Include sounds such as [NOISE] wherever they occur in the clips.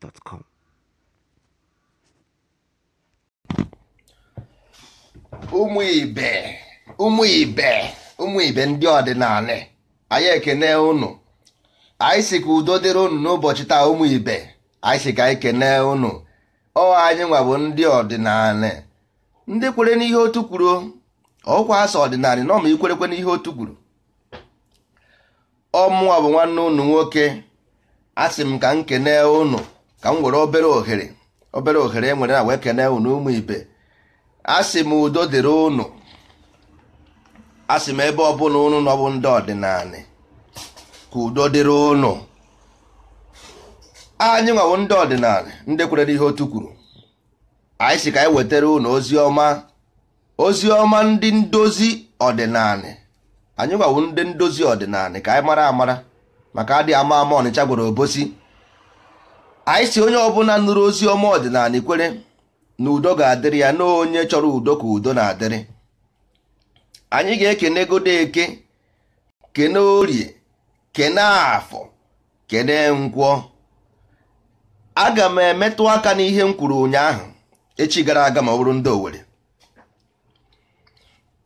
gmail.com. ụmụ ibe ụmụ ibe ụmụ ibe ndị ọdịnala anyị ekene unu anyị si ka udo dịrị unu n'ụbọchị taa ụmụ ibe anyị si ka anyị kene unu ọ anyị nwa bụ ndị ọdịnala ndị kwere n'ihe otu kwuru ọkwa asọ ọdịnala na ọma ikwerekwe n'ihe otu kwuru ọmụwa bụ nwanne unu nwoke asị m ka m kene unu ka m nwere obere ohere obere ohere enwere na wee kene unu ụmụ ibe asị m udo dịrị ụnụ asị m ebe ọbụla ụnụ nọbụ ndị ọdịnala ka udo dịrị unu anyị nwawo ndị ọdịnala ndị kwerere ihe otu kwuru anyị si ka anyị wetara ụnụ ozi ọma ozi ọma ndị ndozi ọdịnala anyị nwawo ndị ndozi ọdịnala ka anyị mara amara maka adịghị ama ama ọnịcha gwere obosi anyị si onye ọbụla nụrụ ozi ọma ọdịnala kwere na udo ga-adịrị ya na onye chọrọ udo ka udo na-adịrị anyị ga-ekene godo eke kene orie kene afọ kene nkwọ aga m emetụ aka n'ihe m kwuru ụnyaahụ echi gara aga ma ọ bụrụ ndị Owere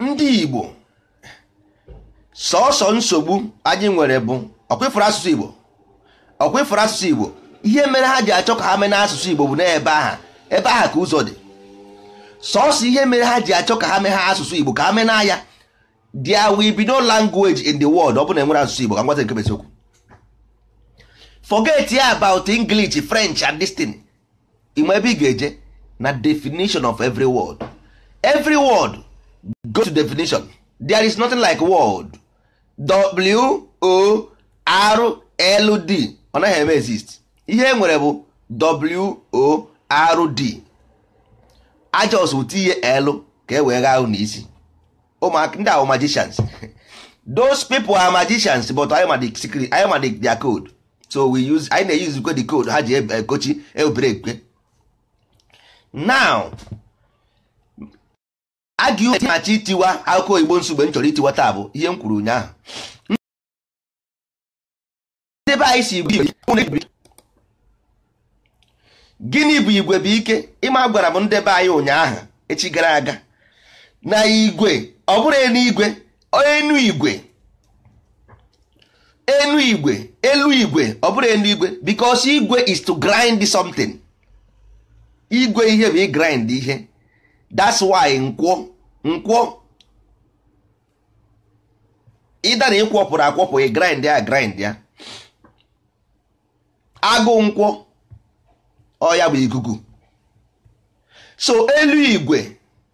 ndị Igbo sọọsọ nsogbu anyị nwere bụ ọkwefuru asụsụ Igbo ọkwefuru asụsụ Igbo ihe mere ha ji achọ ka ha mee n'asụsụ Igbo bụ n'ebe aha ebe aha ka ụzọ dị sọsọ ihe mere ha ji achọ ka ha mee ha asụsụ Igbo ka ha mee na there will be no language in the world ọ bụ na enwere asụsụ Igbo ka ngwata nke besiokwu forget ya about English French and this thing ịma ebe ị ga-eje na definition of every word every word go to definition there is nothing like word w o r l d ọ naghị eme exist ihe e nwere bụ WORD ajọs bụ tinye L ka e wee gha ahụ n'isi ndị ahụ magicians [LAUGHS] those people are magicians but anyị ma the secret am ma their code so we use I na-use the code ha ji ekochi e ebere ekwe now agị machi itiwa akụkọ igbo nsogbe m chọrọ itiwa taa bụ ihe m kwuru ụnyaahụ ndị be anyị si gịnị bụ igwe bụ ike ịma gwara m ndebe be anyị ụnyaahụ echi gara aga na igwe ọ bụrụ enuigwe igwe enu igwe elu igwe elu igwe ọ bụrụ enu igwe because igwe is to grind something igwe ihe bụ i ihe that's why nkwọ nkwọ ịdara ịkwọpụrụ akwọpụ grind ya grind ya agụ nkwọ ọ ya bụ ikuku so elu igwe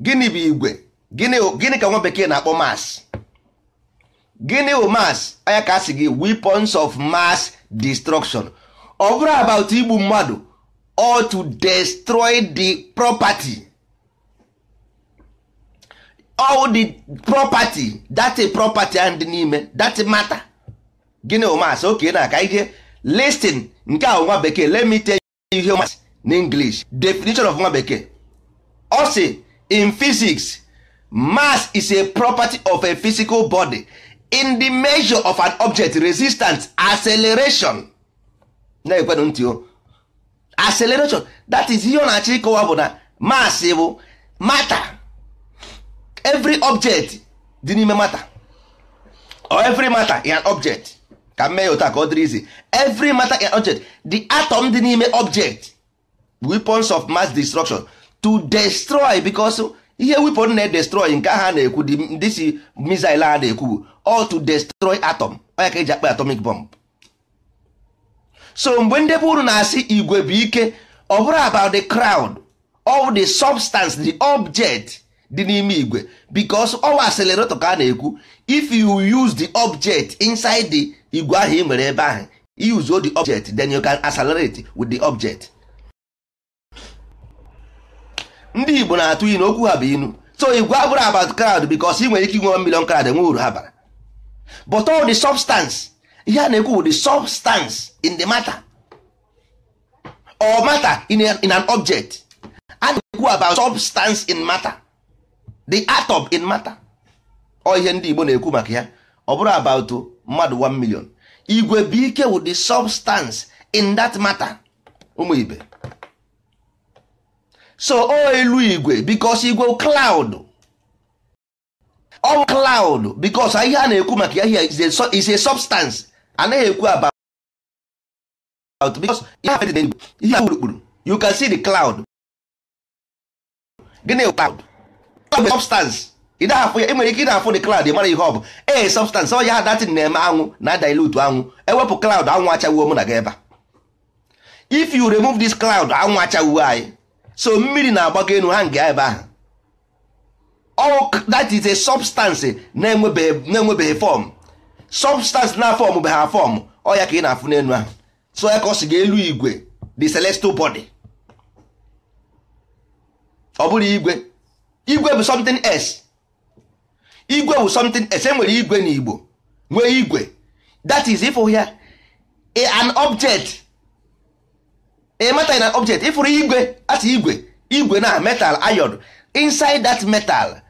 gịnị bụ igwe gịnị ka nwa bekee na-akpọ mass gịnị bụ mass anya ka a gị weapons of mass destruction ọ bụrụ about igbu mmadụ or to destroy the property all the property that property and n'ime that matter gịnị bụ mass oke na aka ihe listin nke a nwa bekee let me humans in English definition of nwa bekee ọ sị in physics mass is a property of a physical body in the measure of an object resistance acceleration na-ekwenụ ntị o acceleration that is ihe ọ na-achọ ịkọwa bụ na mass bụ matter every object dị n'ime matter or every matter is an object ka m mee otu ka ọ dịrị izi every matter in object the atom dị n'ime object weapons of mass destruction to destroy because ihe weapon na destroy nke ahụ na-ekwu ndị si missile a na-ekwu all to destroy atom onye ka eji akpa atomic bomb so mgbe ndị bụ uru na-asị igwe bụ ike ọ bụrụ about the crowd or the substance the object dị n'ime igwe because ọwa acelerator ka a na-ekwu if you use the object inside the igwe ahụ ị nwere ebe ahụ use the object then you can accelerate with the object ndị Igbo na-atụ inu okwu ha bụ inu so igwe abụrụ about crowd because ị nwere ike inwe million crowd enwe uru ha bara but all the substance ihe a na-ekwu bụ the substance in the matter or matter in, a, in an object a na-ekwu about substance in matter the atom in matter ọ ihe ndị Igbo na-ekwu maka ya ọ bụrụ about mmadụ 1 million igwe bụ ike wụ the substance in that matter ụmụ ibe so o elu igwe because igwe cloud ọ cloud because ihe a na-ekwu maka ya is a substance anaghị ekwu about because ihe a kpurukpuru you can see the cloud gịnị cloud substance ị na-afụ ya nwere ike ị na-afụ the cloud mara ihe ọ bụ ee eh, substance ọ ya datin na-eme anwụ na dilute anwụ ewepụ cloud anwụ achawuo mụ na gị ebe if you remove this cloud anwụ achawuo anyị so mmiri na-agbago enu ha nga ebe ahụ ọwụ that is a substance na-enwebeghị fọm substance na fọm bụ ha fọm ọ ya ka ị na-afụ n'enu ahụ so ya ka ọ si ga elu igwe the celestial body ọ bụrụ igwe igwe bụ something else igwe bụ something ese e nwere igwe na igbo nwee igwe that is ịfụ ya an object ịmata na object ịfụrụ igwe asị igwe igwe na metal iron inside that metal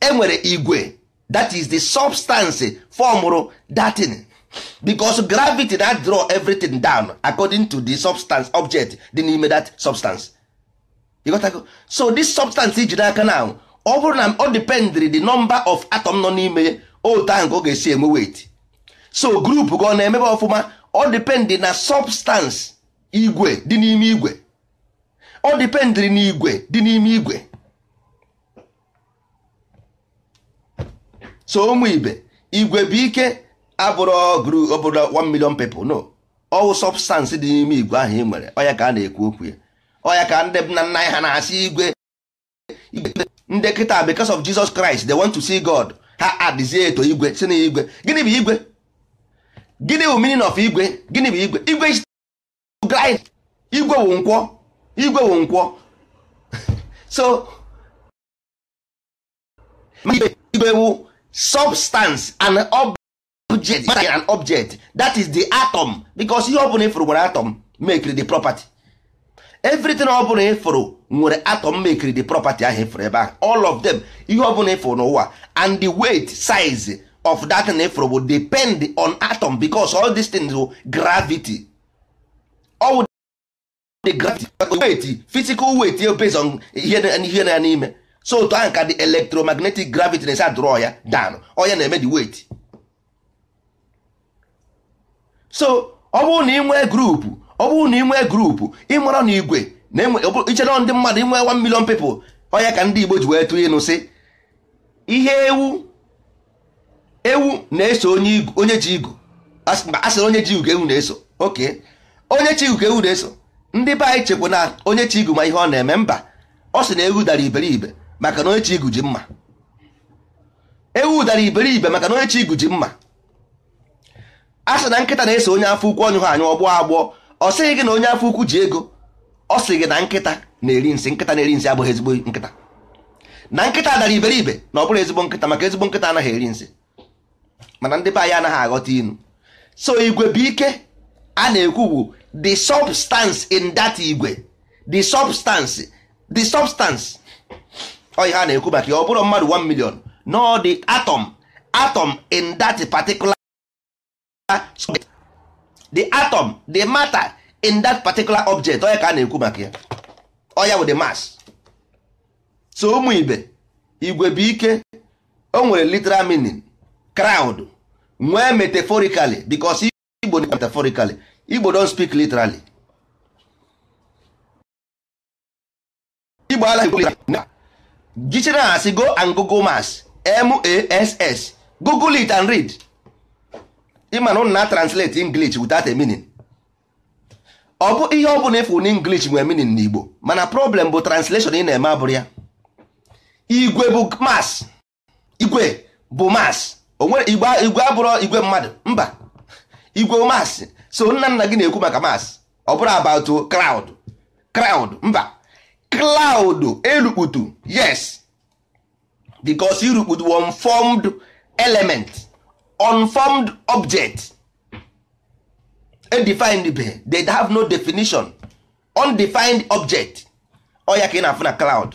enwere igwe that is the substance formụrụ datin because gravity na draw everything down according to the substance object dị n'ime that substance. You got to go? so this substance iji n'aka now ọ bụrụ na ọ dependri the number of atom nọ n'ime otu ahụ ka ọ ga-esi enwe weight so group ka ọ na-emebe ọfụma ọ dependị na substance igwe dị n'ime igwe ọ dependri na igwe dị n'ime igwe so ụmụ ibe igwe bụ ike abụrụ group ọ bụrụ 1 million people no ọwụ substance dị n'ime igwe ahụ ị nwere ọ ya ka a na-ekwu okwu ya ọ ya ka ndị nna nna anyị ha na-asị igwe igwe ndị kịta because of Jesus Christ they want to see God ha adịzie eto igwe si na igwe gịnị bụ igwe gịnị bụ meaning of igwe gịnị bụ igwe igwe is igwe wụ nkwọ igwe wụ nkwọ [LAUGHS] so igwe wụ substance and object an object that is the atom because ihe ọ bụla ifuru gwara atom make the property everything ọ bụla ịfụrụ nwere atom mekiri the property ahụ ịfụrụ ebe ahụ all of them ihe ọ bụla ịfụrụ n'ụwa and the weight size of that na ịfụrụ will depend on atom because all these things will gravity all the gravity weight physical weight based on ihe na ya n'ime so otu ahụ ka the electromagnetic gravity na-esi adụrọ ya down onye na-eme the weight so ọ bụrụ na ị nwee grupu ọ bụrụ na ị nwee grupu ịmara na igwe na-ichere ndị mmadụ inwe 1 million people onya ka ndị Igbo ji wee tụ ịnụ sị ihe ewu ewu na-eso onye ji igu a onye ji igu ka ewu na-eso oke onye chi igu ka ewu na-eso ndị be anyị chekwa na onye chi igu ma ihe ọ na-eme mba ọ sị na ewu dara iberibe maka na onye chi igu ji mma ewu dara iberibe maka na onye chi igu ji mma a na nkịta na-eso onye afọ ukwu ọnyụ ha anyụ ọgbọ agbọ ọ sịghị gị na onye afọ ukwu ji ego ọ sị gị na nkịta na-eri nsị nkịta na-eri nsị abụghị ezigbo nkịta na nkịta dara iberibe na ọ bụrụ ezigbo nkịta maka ezigbo nkịta anaghị eri nsị mana ndị be anyị anaghị aghọta inu so igwe bụ ike a na-ekwu bụ the substance in that igwe the substance the substance ọ ihe a na-ekwu maka ya ọ bụrụ mmadụ 1 million no the atom atom in that particular the atom the matter in that particular object onye ka a na-ekwu maka ya oya wụ the mass so ụmụ ibe igwe bụ ike o nwere literal meaning crowd nwee metaphorically because igbo metaphorically igbo don speak literally igbo ala gichere go and google mass m a s s google it and read ịma na na translate English without a meaning ọ bụ ihe ọ bụla ịfụ na English meaning na Igbo mana problem bụ translation ị na-eme abụrụ ya igwe bụ mass igwe bụ mass onwere igwe abụrụ igwe mmadụ mba igwe mass so nna nna gị na-ekwu maka mass ọ bụrụ about crowd crowd mba cloud erukputu yes because irukputu one formed element unformed object undefined be they have no definition undefined object ọya ka ị na-afụ na cloud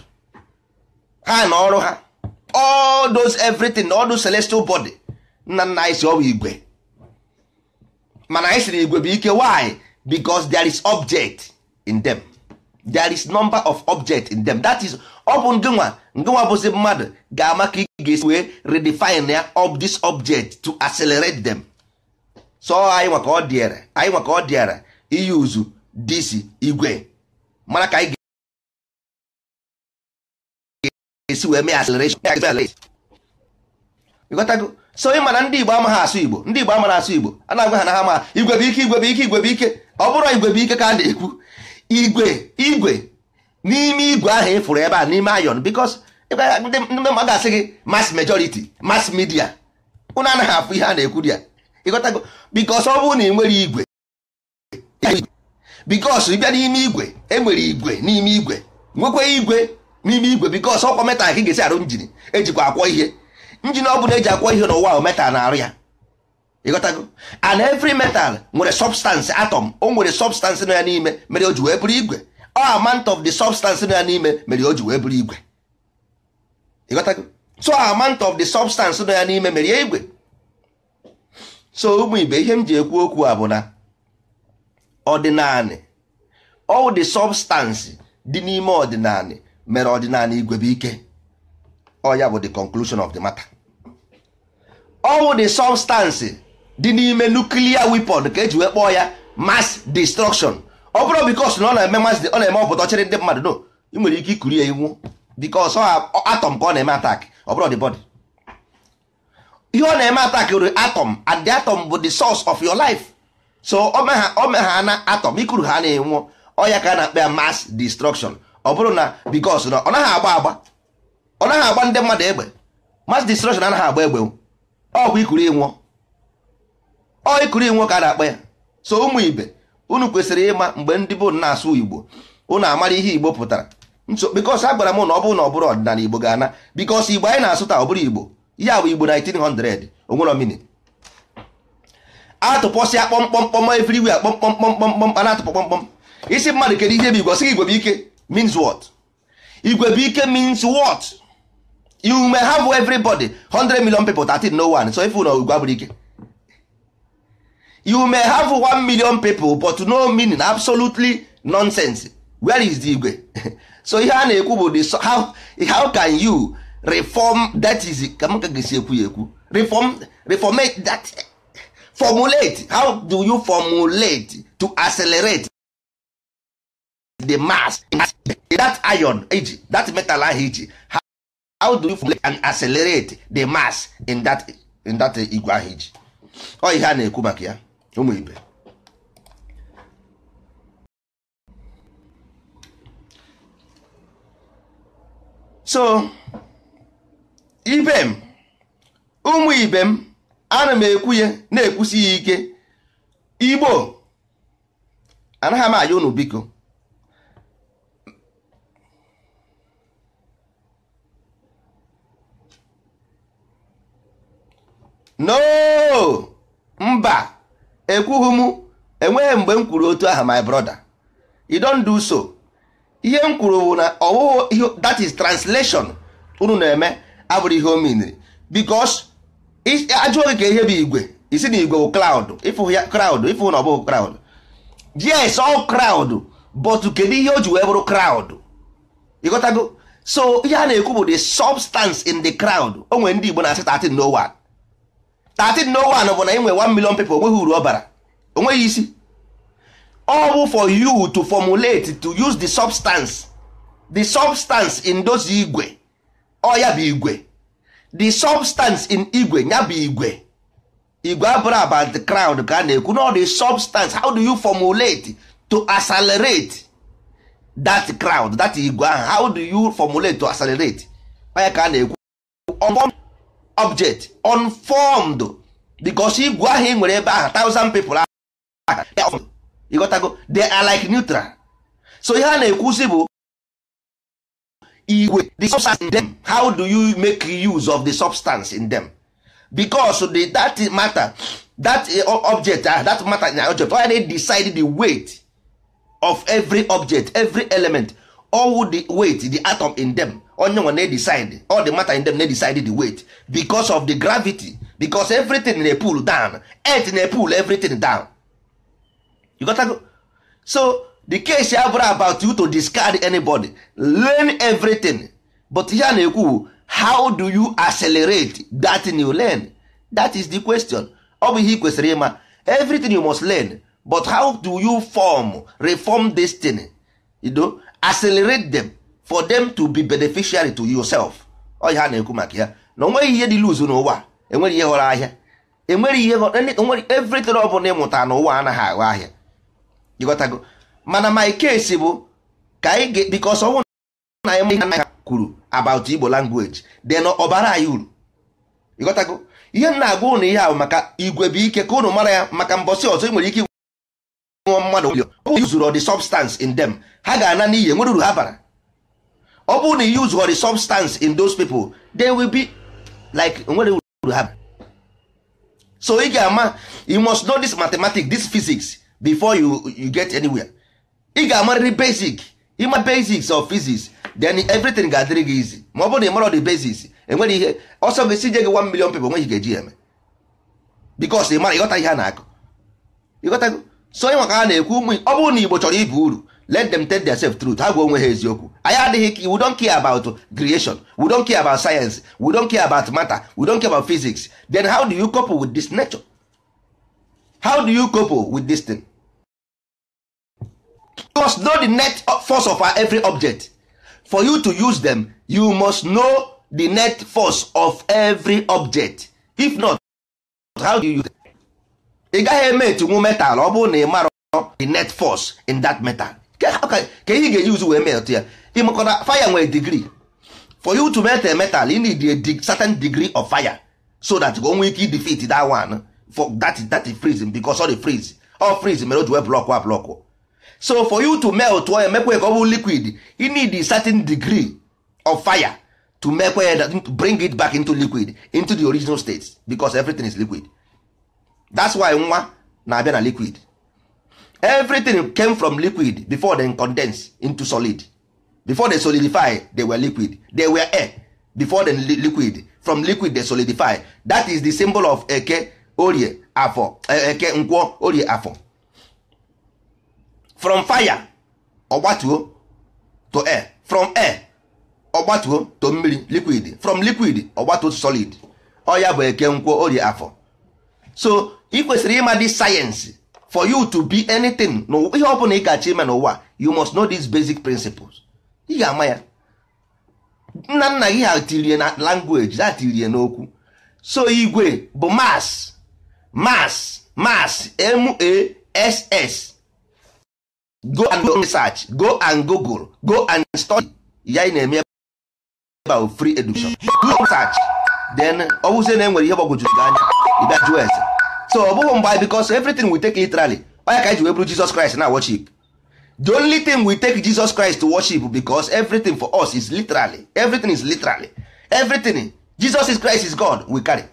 ha na ọrụ ha all those everything all those celestial body nna nna anyị si ọ igwe mana anyị siri igwe bụ ike why because there is object in them. there is number of object in them that is ọ bụ ngịnwa ngịnwa bụzi mmadụ ga-ama ka ị ga-esi wee redefine ya of this object to accelerate them so anyị nwa ka ọ dịara anyị nwa ka ọ iyuzu disi igwe mara ka anyị ga-esi wee mee acceleration ịghọtago so ị ndị Igbo amaghị asụ Igbo ndị Igbo asụ Igbo a na-agwa ha na ha ma igwe bụ ike ndị igwe ọ bụrụ igwe ka a na-ekwu igwe igwe n'ime igwe ahụ fụrụ ebe a n'ime ayon because ndị ga-asị gị mass majority mass media unu anaghị afụ ihe a na-ekwu ya ịghọtago because ọ bụrụ na ị igwe because ịbịa n'ime igwe enwere igwe n'ime igwe nwekwa igwe n'ime igwe because ọkwa metal ka ga-esi arụ njin ejikwa akwọ ihe njin ọ bụla eji akwọ ihe n'ụwa metal na-arụ ya ịghọtago and every metal nwere substance atom o nwere substance nọ ya n'ime mere o ji wee bụrụ igwe all amount of the substance nọ ya n'ime mere o ji wee bụrụ igwe ịghọtago so amount of the substance nọ ya n'ime mere ya igwe so ụmụ ibe ihe m ji ekwu okwu a bụ na ọdịnanị all the substance dị n'ime ọdịnaanị mere ọdịnanị igwe bụ ike ọ ya bụ the conclusion of the matter all the substance dị n'ime nuklia wepon ka eji wee kpọọ ya mas destruction ọ bụrụ bikos na ọ na-eme mass ọ na-eme ọpụta ọchịrị ndị mmadụ no ị nwere ike ikuri ya iwu bikos atọm ka ọ na-eme atak ọ bụrụ the ihe ọ na-eme atak were atọm and the atom bụ the source of your life so o me ha na atọm ikuru ha na-enwụ ọya ka a na-akpa ya mas destruction ọ bụrụ na bikos na ọ naghị agba agba ọ naghị agba ndị mmadụ egbe mass destruction anaghị agba egbe ọ bụ ikuru ịnwụọ ikuru inwe ka a na-akpọ ya so ụmụ ibe unu kwesịrị ịma mgbe ndị bụ na-asụ igbo unu amara ihe igbo pụtara bikos a gwara m na ọ bụrụ na ọ bụrụ ọdịnala igbo ga-ana bikos igbo anyị na-asụ taa ọ bụrụ igbo ya bụ igbo 1900 onwere omini atụpọsịa kpọmkpọmkpọm everywhere kpọmkpọmkpọmkpọm a na-atụpọ kpọmkpọm isi mmadụ kedu ihe bụ igwe sị igwe bụ ike means what igwe bụ ike have 100 13 no so ife ụlọ igwe abụrụ ike you may have one million people but no meaning absolutely nonsense where is the igwe [LAUGHS] so ihe a na-ekwu bụ how how can you reform that is ka m ka gesi ekwu ya ekwu reform reformate that formulate how do you formulate to accelerate the mass that iron age that metal ahụ iji how do you formulate and accelerate the mass in that in that igwe ahụ iji ọ ihe a na-ekwu maka ya ụmụ ibe so ibe m ụmụ ibe m ana m na-ekwusi ya ike igbo anaghị m aya unu biko no mba ekwughị m enweghị mgbe m kwuru otu aha my brother you don't do so ihe m kwuru bụ na ihe that is translation unu na-eme abụrụ ihe o miniri because ajụọ gị ka ihe bụ igwe isi na igwe bụ cloud ịfụ ya cloud ịfụ na ọ bụghị cloud yes all cloud but kedu ihe o ji wee bụrụ cloud ịghọtago so ihe a na-ekwu bụ the substance in the cloud o nwere ndị Igbo na-asị 13 no 1301 bụ na ị nwere 1 million people onweghị uru ọ bara onweghị isi ọ bụ for you to formulate to use the substance the substance in those igwe ọ oh, ya bụ igwe the substance in igwe ya bụ igwe igwe abụrụ about the crowd ka a na-ekwu na the substance how do you formulate to accelerate that crowd that igwe ahụ how do you formulate to accelerate ya ka a na-ekwu object unformed because igwe ahụ ị nwere ebe ahụ thousand people ịghọtago they are like neutral so ihe a na-ekwusi bụ igwe the substance in them how do you make use of the substance in them because the, that matter that eh, object ah that matter na object why they decide the weight of every object every element all the weight the atom in them onye nwe na-decide all the matter in them na-decide the weight because of the gravity because everything na pull down earth na pull everything down you got to go? so the case abụrụ about you to discard anybody learn everything but ihe na-ekwu how do you accelerate that you learn that is the question ọ bụ ihe ị kwesịrị ịma everything you must learn but how do you form reform this thing you know accelerate them for them to be beneficiary to yourself ọ ha na-ekwu maka ya na onweghị ihe dị luzu n'ụwa Enwere ihe ghọrọ ahịa Enwere ihe onwere e e everything ọ bụla ịmụta n'ụwa anaghị aghọ ahịa ịghọtago mana my case bụ ka anyị ga because ọnwụ na anyị ihe anaghị kwuru about Igbo language then ọbara anyị uru ịghọtago ihe m na-agwa ụnụ ihe ahụ maka igwe bụ ike ka ụnụ mara ya maka mbọsị ọzọ ị nwere ike nwe mmadụ ọ zuru the substance in them ha ga-ana n'iyi enwere uru ha bara ọ bụrụ na you use the substance in those people they will be like nwere uru ha so ị ga-ama you must know this mathematics this physics before you, you get anywhere ị ga-amarịrị basic ịma basics of physics then everything ga-adịrị gị easy ma ọ bụrụ na ị marọ the basics enwere ihe ọsọ gị si gị 1 million people nweghị ga-eji eme because ị mara ịghọta ihe a na-akụ ịghọta so ị maka a na-ekwu ụmụ ọ bụrụ na Igbo chọrọ ibu uru let them tell themselves truth ha gwa onwe ha eziokwu anyị adịghị we don't care about creation we don't care about science we don't care about matter we don't care about physics then how do you couple with this nature how do you couple with this thing you must know the net force of every object for you to use them you must know the net force of every object if not how do you use them? ị gaghị eme etinwu metal ọ bụrụ na ị marọ the net force in that metal ka ihe ga use uzu wee metụ ya ịmakọta fire nwere degree for you to melt a metal you need a certain degree of fire so that o nwee ike defeat that one for that that freeze because all the freeze all freeze mere o ji wee block a block so for you to melt ọ emekwa ka ọ bụ liquid you need a certain degree of fire to make ya bring it back into liquid into the original state because everything is liquid that's why nwa na-abịa na liquid everything came from liquid before they condense into solid before they solidify they were liquid they were air before they li liquid from liquid they solidify that is the symbol of eke orie afọ eh, eke Nkwo orie afọ from fire ogbatuo to air from air ogbatuo to mmiri liquid from liquid ogbatuo to solid Oya ya bụ eke Nkwo orie afọ so ị kwesịrị ịma dị sayensị for you to be anything ihe ọ bụla ị ga-achọ ime n'ụwa you must know these basic principles ị ga-ama ya nna nna gị ha tirie na language ha tirie n'okwu so igwe bụ mass mass mass m-a-s-s go and go research go and google go and study ya ị na-eme about free education go research then ọ bụzie na enwere ihe gbagwojuru gị anya ịbịa jụọ eze. so ọ bụghị mgbe because everything we take literally onye ka ji wee bụrụ Jesus Christ na worship the only thing we take Jesus Christ to worship because everything for us is literally everything is literally everything Jesus is Christ is God we carry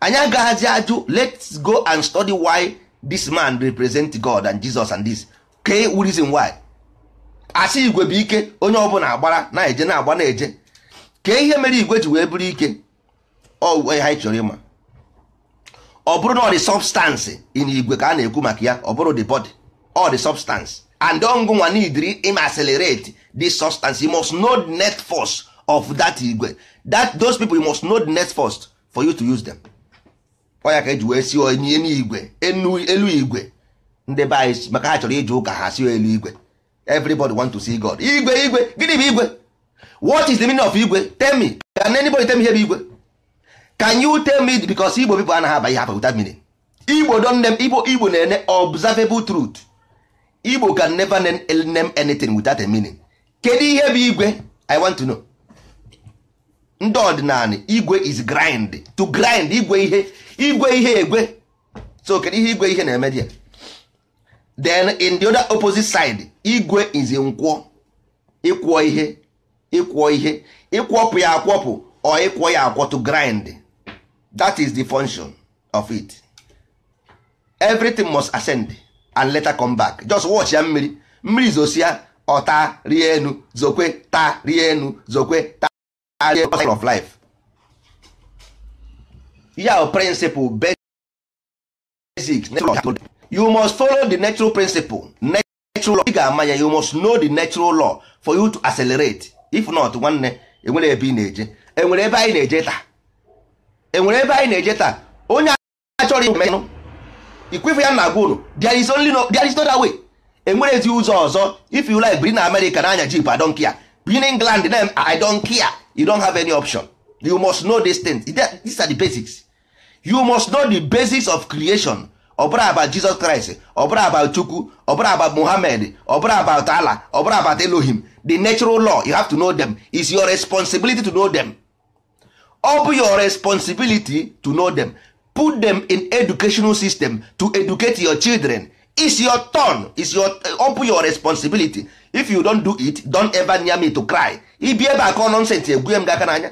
anyị agaghazi ajụ let's go and study why this man represent God and Jesus and this kee reason why asị igwe bụ ike onye ọbụla agbara na-eje na-agba na-eje kee ihe mere igwe ji wee bụrụ ike ọ anyị chọrọ ịma ọ bụrụ na ọ dị substance in igwe ka a na-ekwu maka ya ọ bụrụ the body all the substance and ọngụnwa nidiri im accelerate the substance you must know the net force of that igwe that those people you must know the net force for you to use them ọ ya ka eji wee si onye n'igwe elu igwe ndị be anyị maka ha chọrọ ije ụka ha si elu igwe everybody want to see God igwe igwe gịnị bụ igwe what is the meaning of igwe tell me can anybody tell me ihe bụ igwe can you tell me because igbo people anaghị aba ihe afọ without meaning igbo don name igbo igbo na-ene observable truth igbo can never name anything without a meaning kedu ihe bụ igwe i want to know ndị ọdịnala igwe is grind to grind igwe ihe igwe ihe egwe so kedu ihe igwe ihe na-eme dia then in the other opposite side igwe is nkwọ ịkwọ ihe ịkwọ ihe ịkwọpụ ya akwọpụ ọ ịkwọ ya akwọ to grind that is the function of it everything must ascend and later come back just watch ya mmiri mmiri zosia ọta rie enu zokwe ta rie enu zokwe ta rie enu of life ya principle basic you must follow the natural principle natural law ị ga you must know the natural law for you to accelerate if not nwanne enwere ebe ị na-eje enwere ebe anyị na-eje taa enwere ebe anyị na-eje taa onye achọrọ ihu ikwefu ya na agwa unu there is only there is no other way enwere ezi ụzọ ọzọ if you like biri na America na anya jip I don't care biri England na I don't care you don have any option you must know these things these are the basics you must know the basics of creation ọbụla about Jesus Christ ọbụla about Chukwu ọbụla about Muhammad ọbụla about Allah ọbụla about Elohim the natural law you have to know them it's your responsibility to know them ọ bụ your responsibility to know them put them in educational system to educate your children it's your turn it's your ọ bụ your responsibility if you don do it don ever near me to cry ịbịa ebe akọ nonsens egbuye m gị aka n'anya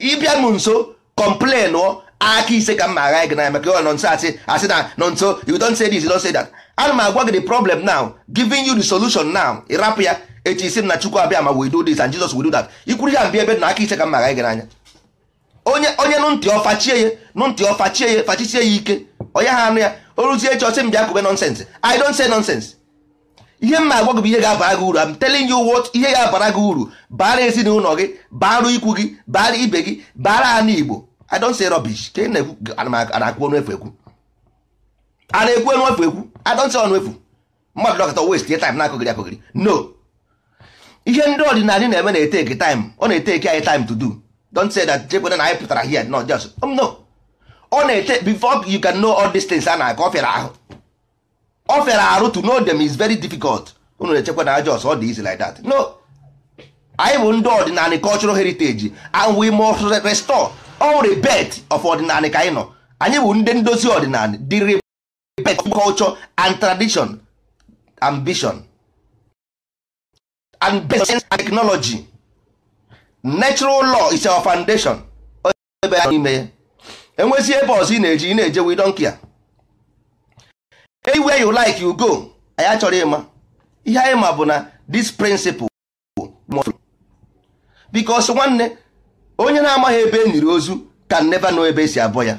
ịbịa m nso complain ọ aka ise ka m ma agha gị n'anya maka ọ nso asị asị na nso you don say this you don say that ana m agwa gị the problem now giving you the solution now ịrapụ ya echi isi m na chukwu abịa ma we do this and jesus we do that ikwuru ya mbịa ebe na aka ise ka m ma agha gị n'anya onye onye nụ ntị ọfachie ya nụ ntị ọfachie ya fachisie ya ike onye ha anụ ya oruzie echi ọsị m bịa kube nonsense i don say nonsense ihe m agwa gị bụ ihe ga-abara gị uru am telling you what ihe ga-abara gị uru bara ezinụlọ gị bara ikwu gị bara ibe gị bara anụ igbo i don say rubbish ka e na-ekwu ọnụ efu ekwu a na-ekwu ọnụ ekwu i don say ọnụ mmadụ dọkịta waste time na-akụgịrị akụgịrị no ihe ndị ọdịnala na-eme na-ete eke time ọ na-ete eke anyị time to do don't say that jekwana na anyị pụtara here no just um, no ọ na take before you can know all these things a na-aga ọ ahụ ọ arụ to know them is very difficult unu na-echekwa na just ọ dị easy like that no anyị bụ ndị ọdịnala cultural heritage and we must restore all the bet of ọdịnala ka anyị nọ anyị bụ ndị ndozi ọdịnala the rebirth of culture and tradition ambition and best and technology natural law is our foundation ebe a n'ime ya enwezi ebe ọzọ ị na-eji ị na-eje wi don't care anywhere you like you go Anya achọrọ ịma ihe anyị ma bụ na this principle because nwanne onye na-amaghị ebe e ozu can never know ebe esi abụọ ya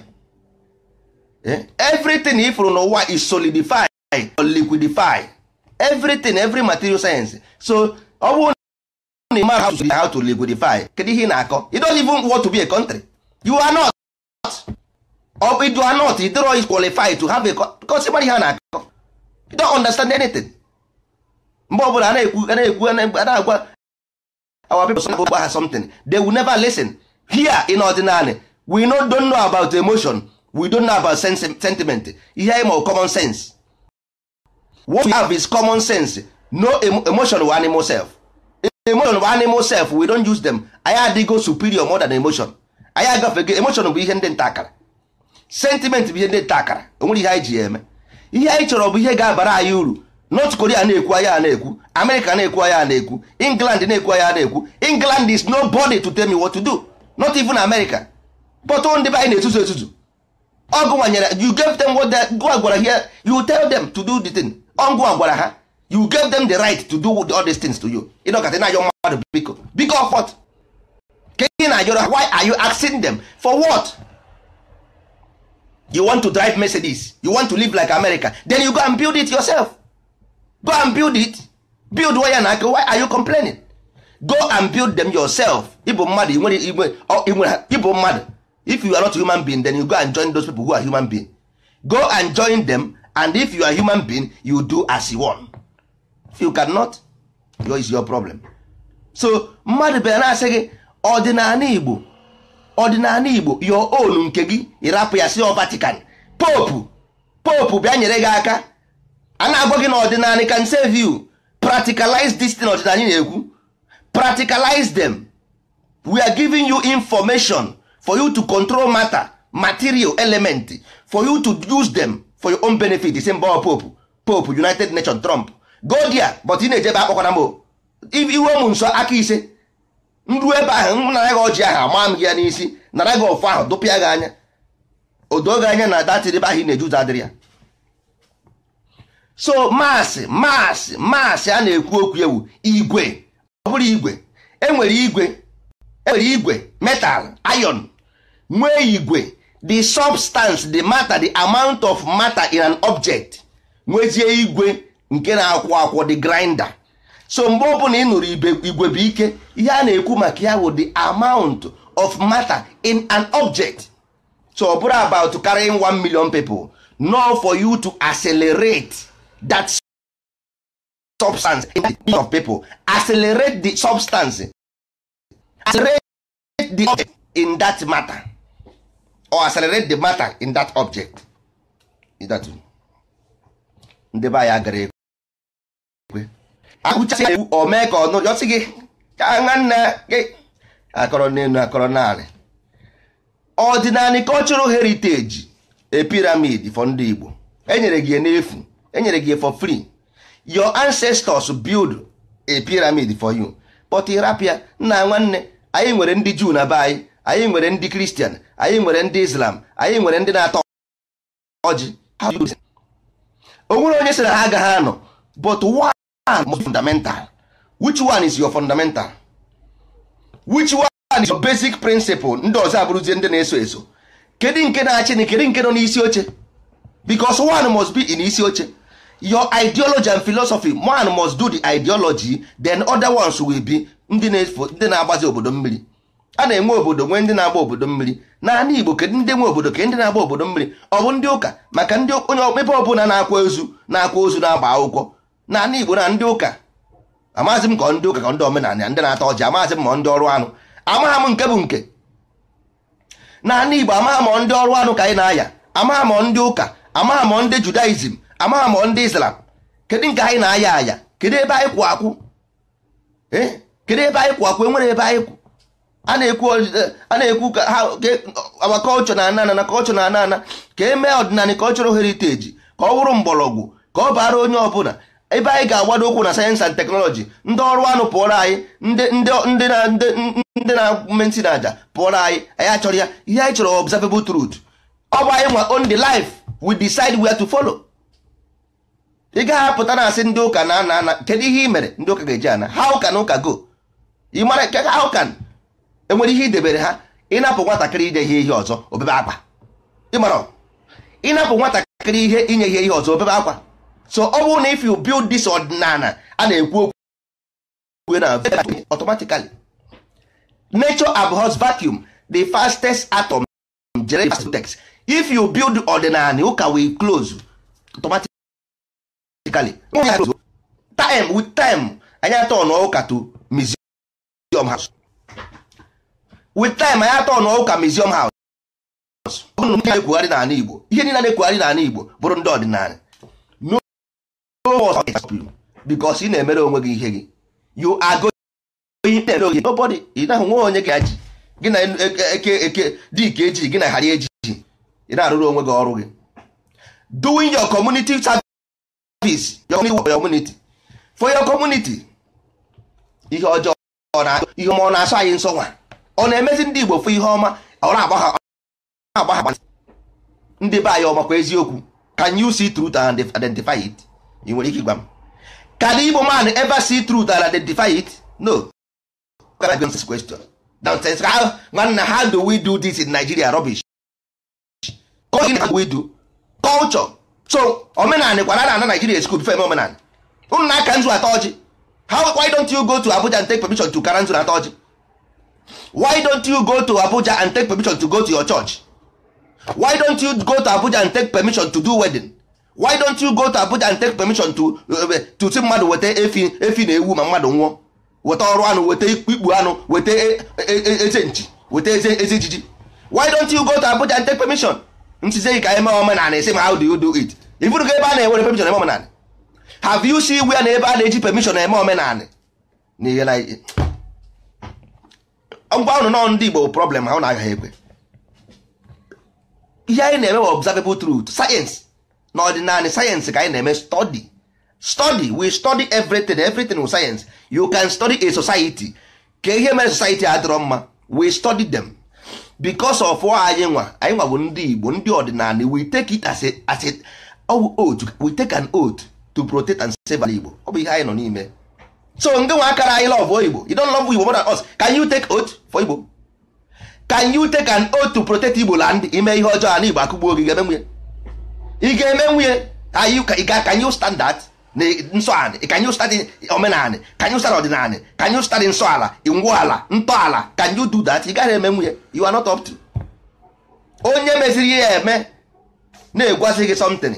eh? everything ifuru n'ụwa is solidified or liquidified everything every material science so ọ bụrụ na you man how to, how to liquidify kedu ihe ị na-akọ you don't even want to be a country you are not or you are not you qualify to have a because ịmara ihe a na-akọ you don't understand anything mgbe ọbụla a na-ekwu a na-ekwu a na-agwa our people gba ha they will never listen here in ordinary we no know about emotion we don know about sentiment ihe ịma common sense what we have is common sense no emotion animal self emotion bụ animal self we don't use them anyị adịgo superior mother than emotion anyị agafego emotion bụ ihe ndị nta akara sentiment bụ ihe ndị nta akara onwere ihe anyị ji ya eme ihe anyị chọrọ bụ ihe ga-abara anyị uru north korea na-ekwu anya na-ekwu america na-ekwu anya na-ekwu england na-ekwu anya na-ekwu england is nobody to tell me what to do not even america but ndị be anyị na-etuzu etuzu ọgụ nwanyere you gave them what they go agwara here you tell them to do the thing ọgụ agwara ha you give them the right to do all these things to you ịnọkọta na-ayọ mmadụ biko biko of what ka ị na why are you asking them for what you want to drive Mercedes you want to live like America then you go and build it yourself go and build it build waya na aka why are you complaining go and build them yourself ịbụ mmadụ ịbụ mmadụ if you are not a human being then you go and join those people who are human being go and join them and if you are a human being you do as you want. if you cannot your is your problem so mmadụ bịa na-asị gị ọdịnala igbo ọdịnala igbo your own nke gị ịrapụ ya si Vatican popu popu bịa nyere gị aka a na gị na ọdịnala can save you practicalize this thing ọdịnala na-ekwu practicalize them we are giving you information for you to control matter material element for you to use them for your own benefit the same popu popu united nations trump go there but ị na-ejebe na m iwe m nsọ aka ise nruo ebe ahụ nara gị ọjị ahụ ama m gị ya n'isi nara gị ọfọ ahụ dụpịa gị anya odo gị anya na datịrị ebe ahụ ị na eje ụzọ adịrị ya so maasị maasị maasị a na-ekwu okwu ewu igwe ọ bụrụ igwe enwere igwe enwere igwe metal iron nwee igwe the substance the matter the amount of matter in an object nwezie igwe nke na-akwọ akwọ dị grinder so mgbe ọbụla ị nụrụ igwe bụ ike ihe a na-ekwu maka ya bụ the amount of matter in an object so ọ bụrụ about carrying one million people no for you to accelerate that substance in the of people accelerate the substance accelerate the object in that matter or accelerate the matter in that object ndị be anyị agara akụcha ewu o mee ka ọnụ yọsị gị aṅa nna gị akọrọ n'elu akọrọ naanị ọdịnala cultural heritage e piramid for ndị Igbo enyere gị n'efu enyere gị for free your ancestors build a pyramid for you but rapia nna nwanne anyị nwere ndị Jew na be anyị anyị nwere ndị Kristian, anyị nwere ndị Islam anyị nwere ndị na-atọ ọjị o nwere onye sị na ha agaghị anọ but why Ah, more fundamental which one is your fundamental which one is your basic principle ndị ọzọ abụrụzie ndị na-eso eso kedu nke na-achị na kedu nke nọ n'isi oche because one must be in isi oche your ideology and philosophy one must do the ideology then other ones will be ndị na-agbazi obodo mmiri a na-enwe obodo nwee ndị na-agba obodo mmiri naanị Igbo kedu ndị nwe obodo ke ndị na-agba obodo mmiri ọ bụ ndị ụka maka ndị onye ebe ọbụla na-akwa ozu na-akwa ozu na-agba akwụkwọ na ndị Igbo na ndị ụka amaghịzị m ka ndị ụka ka ndị omenala ndị na-ata ọjị amaghịzị m ma ndị ọrụ anụ amaghị m nke bụ nke na ndị Igbo amaghị m ndị ọrụ anụ ka anyị na-aya amaghị m ndị ụka amaghị m ndị Judaism amaghị m ndị Islam kedu nke anyị na-aya aya kedu ebe anyị kwụ akwụ eh? kedu ebe anyị kwụ akwụ enwere ebe anyị kwụ a na-ekwu ka ha agba kọlchọ na ana na kọlchọ na ana ka e mee ọdịnala kọlchọrọ heriteji ka ọ bụrụ mgbọrọgwụ ka ọ bara onye ọbụla ebe anyị ga-agbado ụkwụ na sayensị and teknọlọji ndị ọrụ anụ pụọrọ anyị ndị na-eme ntị na pụọrọ anyị anyị achọrọ ya ihe anyị chọrọ observable truth ọ bụ anyị nwa on the life we decide where to follow ị gaghị apụta na asị ndị ụka na ana ana kedu ihe ị mere ndị ụka ga-eji ana how can ụka go ị mara nke how can enwere ihe idebere ha ịnapụ nwatakịrị inye ihe ihe ọzọ obebe akwa ịmara ịnapụ nwatakịrị ihe inye ihe ihe ọzọ obebe akwa so ọ bụrụ na if you build this ọdịnala a na-ekwu okwu na automatically nature abhors vacuum the fastest atom text if you build ọdịnala ụka will close automatically time with time anyị atọ n'ụka to museum house with time anyị atọ n'ụka museum house na ekwugharị n'ala Igbo ihe niile na-ekwugharị n'ala Igbo bụrụ ndị ọdịnala because ị na-emere onwe gị ihe gị you are going nobody ị naghị nwe onye ka ji gị na eke eke dike eji gị na ghara eji ị na-arụrụ onwe gị ọrụ gị doing your community service your community for your community ihe ọjọọ ihe ọma ọ na-asọ anyị nsọ nwa ọ na-emezi ndị Igbo fụ ihe ọma ọ na-agba ha ndị be anyị ọmakwa eziokwu can you see truth and identify it? ị nwere ike ịgwa m can igbo man ever see truth and identify it no nonsense question nonsense how nwanna how do we do this in nigeria rubbish we do culture so omenanị kwara na ana nigeria school before eme omenanị unu na aka nzu ata ọjị why don't you go to abuja and take permission to kara nzu ata ọjị why don't you go to abuja and take permission to go to your church why don't you go to abuja and take permission to do wedding why don't you go to Abuja and take permission to uh, to si mmadụ weta efi na ewu ma mmadụ nwụọ weta ọrụ anụ weta ikpu anụ weta e, e, e, eze nchi weta eze ejiji why don't you go to Abuja and take permission ntize ka eme omenala esi ma how do you do it ifuru ga ebe a na-ewere permission eme omenala have you see where na ebe a na-eji permission eme omenala na ihe na ngwa ụnụ nọ ndị Igbo problem ha ụnụ agaghị ekwe ihe anyị na-eme observable truth science na ọdịnala sayensị ka anyị na-eme study study we study everything everything with science you can study a society ka ihe mere society adịrọ mma we study them because of anyị nwa anyị nwa bụ ndị Igbo ndị ọdịnala we take it as a as a oh, oath we take an oath to protect and save ala Igbo ọ bụ ihe anyị nọ n'ime so ndị nwa akara anyị love Igbo you don't love Igbo more than us can you take oath for Igbo can you take an oath to protect Igbo land ime ihe ọjọọ a na Igbo akụgbuo gị ga-eme ị ga-eme nwunye ka anyị standard na nsọanị ka anyị standị omenanị ka anyị standị ọdịnanị ka anyị standị nsọ ala ngwu ala ntọala ka anyị do that ị gaghị eme nwunye you are not up to onye meziri ihe ya eme na-egwazi gị something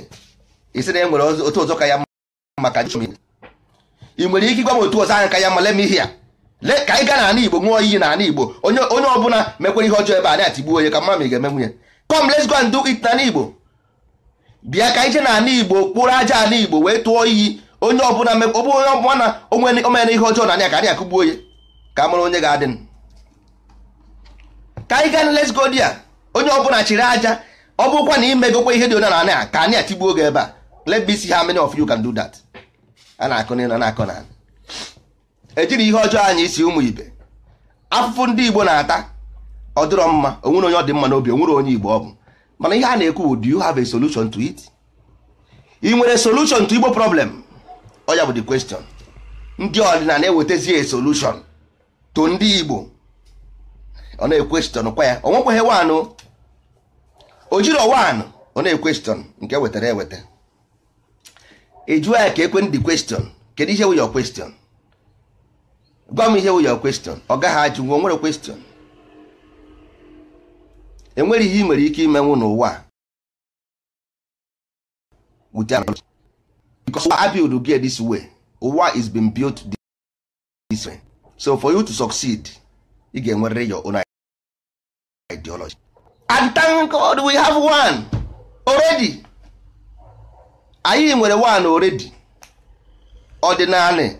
isi na e otu ọzọ ka ya maka ị nwere ike ịgwa m otu ọzọ anya ka ya mma lem ihe ya le ka anyị na n'ala igbo nwụọ iyi na n'ala igbo onye ọbụla mekwere ihe ọjọọ ebe a na-atigbuo onye ka mma ma ị ga-eme nwunye come let's go and it n'ala igbo bịa ka ije n'ala igbo kpụrụ aja ala igbo wee tụọ iyi onye ọbụla ọbụ onye ọbụla na omere ihe ọjọọ na anya ka anyị akụgbuo onye ka mụrụ onye ga-adị ka anyị gaa let's a onye ọbụla chịrị aja ọ bụkwa na imegokwa ihe dị onye na anya ka anyị atigbuo gị ebe a let me see how many of you can do that a na-akụ na akụ na na na ejiri ihe ọjọọ anyị isi ụmụ ibe afụfụ ndị igbo na-ata ọ dịrọ mma onwere onye ọ dị mma n'obi onwere onye igbo ọ bụ mana ihe a na-ekwu do you have a solution to it ị nwere solution to igbo problem ọ ya bụ the question ndị na ewetazi a solution to ndị igbo ọ na-ekwestion kwa ya ọ nwekwaghị wanụ o jiri ọ na-ekwestion nke e wetara eweta ịjụọ ya ka ekwen the question kedu ihe wụ your question gwa m ihe wụ your question ọ gaghị ajụ nwe o nwere question enwere ihe ị nwere ike imenwu n'ụwa because I build get this way ụwa is been built this way so for you to succeed ị ga-enwerịrị your own ideology and thank God we have one already anyị nwere one already ọdịnala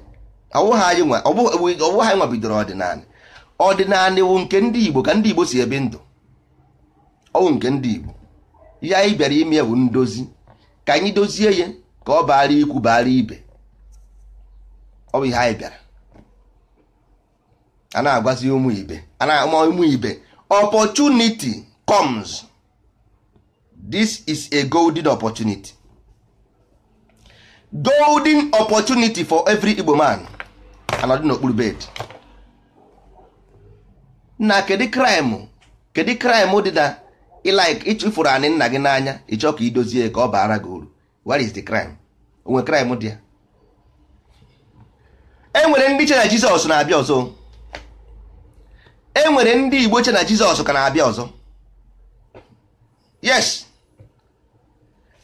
ọwụghị anyị nwa bidoro ọdịnala ọdịnala wụ nke ndị Igbo ka ndị Igbo si ebi ndụ ọnwụ nke ndị Igbo ihe anyị bịara ime bụ ndozi ka anyị dozie ya ka ọ baara ikwu baara ibe ọ bụ ihe anyị bịara a na-agwazi ụmụ ibe a na-ama ụmụ ibe opportunity comes this is a golden opportunity golden opportunity for every Igbo man anọdụ n'okpuru bed na kedu crime kedu crime dị na ịlaik ịchụfụrụ anị nna gị n'anya ịchọ ka idozie ka ọ baara gị uru what is the crime onwe crime dị ya enwere ndị che na jizọs na-abịa ọzọ enwere ndị igbo che na jizọs ka na-abịa ọzọ yes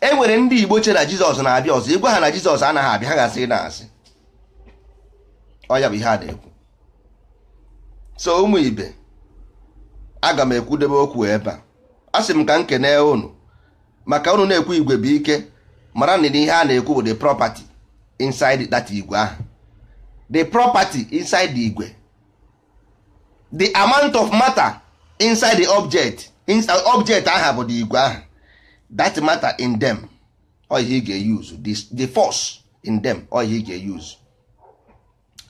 enwere ndị igbo che na jizọs na-abịa ọzọ ịgwa ha na jizọs anaghị abịa ha ga-asị na asị ọ ya bụ ihe a na-ekwu so ụmụ ibe aga m ekwudebe okwu ebe a asị m ka m kene unu maka unu na-ekwu igwe bụ ike mara na ihe a na-ekwu bụ the property inside that igwe ahụ the property inside the igwe the amount of matter inside the object inside object aha bụ the igwe ahụ that matter in them ọ ị ga-use the, the force in them ọ ị ga-use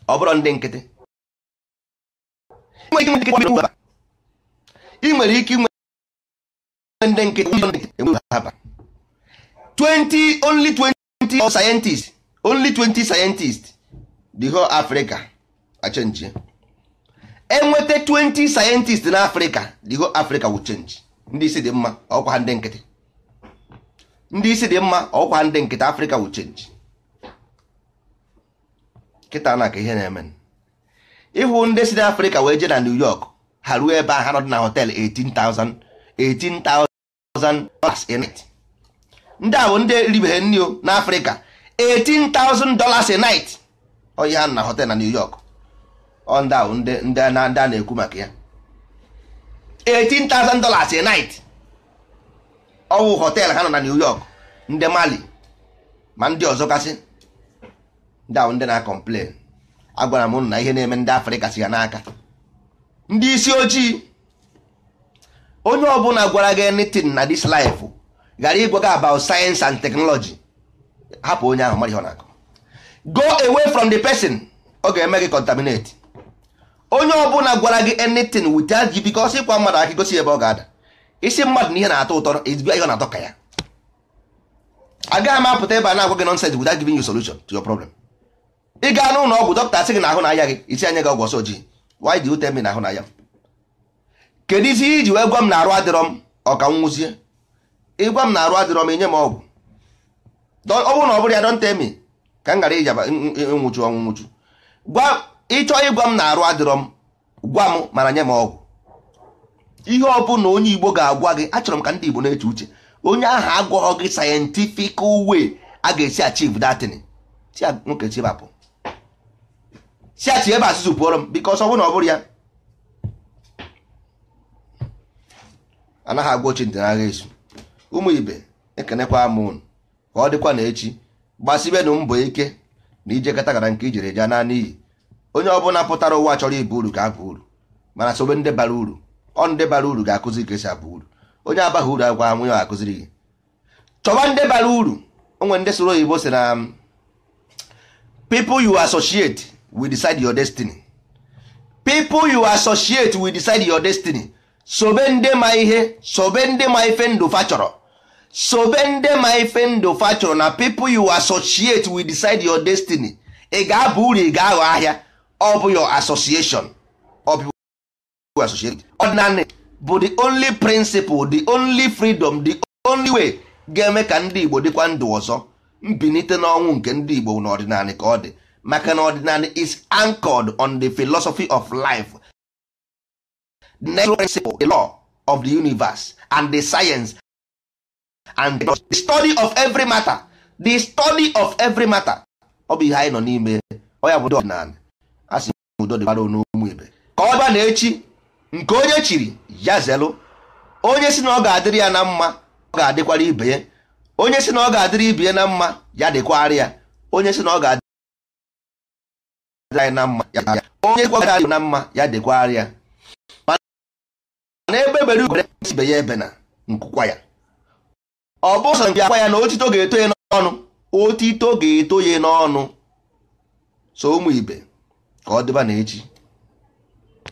ọ bụrụ ndị nkịtị ị nwere ike ndị nkịtị haba 20 only 20 scientists only 20 scientists the whole Africa achange enweta 20 scientists na Africa the whole Africa will change ndị isi dị mma ọkwa ndị nkịtị ndị isi dị mma ọkwa ndị nkịtị Africa will change kịta na ka ihe na-eme ịhụ ndị si na Africa wee jee na New York ha ruo ebe a ha nọ dị na hotel 18,000 18,000 ndị a bụ ndị ribeghe nri na afrịka 18,000 dollars a night onye ha na hotel na new york ọ ndị a bụ ndị a na-ekwu maka ya 18,000 dollars a night ọwụ hotel ha nọ na new york ndị mali ma ndị ọzọ kasị ndị ahụ ndị na-akọmplen agwara m na ihe na-eme ndị afrịka si ya n'aka ndị isi ojii onye ọbụla gwara gị anything na this life ghara ịgwa gị about science and technology hapụ onye ahụ mara ihe ọ na-akụ go away from the person ọ ga-eme gị contaminate onye ọbụla gwara gị anything without you because ịkwa mmadụ aka gosi ebe ọ ga-ada isi mmadụ na ihe na-atọ ụtọ ezigbo ihe ọ na-atọ ka ya agaghị m apụta ebe a na-agwa gị nonsense without giving you solution to your problem ị gaa n'ụlọ ọgwụ dọkịta sị gị na ahụ na aya gị isi anya gị ọgwụ ọsọ ojii why do you na ahụ na aya m kedu isi iji wee gwa m na arụ adịrọ m ọka m nwụzie ịgwa m na arụ adịrọ m inye m ọgwụ ọ bụrụ na ọ bụrụ ya dọnta emi ka m ghara ijaba nwụchu ọnwụ nwụchu ịchọ ịgwa m na arụ adịrọ m gwa m mana nye m ọgwụ ihe ọ bụ na onye igbo ga-agwa gị achọrọ m ka ndị igbo na-eche uche onye ahụ agwọghọ gị sayentifik uwe a ga-esi achieve datin si nwoke chibapụ si achi ebe asụsụ pụọrọ m bikos ọ bụrụ na ọ bụrụ ya anaghị agwa ochi ntị n'agha esu ụmụ ibe ekenekwa m unu ka ọ dịkwa na echi gbasibenụ mbọ ike na ije kata gara nke ijere eje naanị iyi onye ọbụla pụtara ụwa chọrọ ibu uru ga-aba uru mana sobe ndị bara uru ọ ndị bara uru ga-akụzi ka esi abụ uru onye abaghị uru agwa nwunye ọ akụziri gị chọba ndị bara uru onwe ndị soro oyibo si na people you associate will decide your destiny people you associate will decide your destiny sobe ndị ma ihe sobe ndị ma ife ndụ fa sobe ndị ma ife ndụ fa na people you associate with decide your destiny ị ga-aba uru ị ga-aghọ ahịa ọ bụ your association ọdịnanị bụ the only principle the only freedom the only way ga-eme ka ndị Igbo dịkwa ndụ ọzọ mbinite n'ọnwụ nke ndị Igbo n'ọdịnanị ka ọ dị maka na ọdịnanị is anchored on the philosophy of life the natural principle the law of the universe and the science and the study of every matter the study of every matter ọ bụ ihe anyị nọ n'ime ọ ya bụ ọdịnala a sị udo dịbara n'ụmụ ibe ka ọ bịa na echi nke onye chiri ya zelụ onye si na ọ ga-adịrị ya na mma ọ ga-adịkwara ibe ya onye si na ọ ga-adịrị ibe ya na mma ya dịkwara ya onye si na ọ ga-adịrị anyị na mma ya onye kwa na mma ya dịkwara ya na ebe bere e ugere ibe ya ebe na nkwukwa ya ọ bụ ụzọ akwa ya na otito ga-eto ya n'ọnụ otito ga-eto ya n'ọnụ so ụmụ ibe ka ọ dịba na echi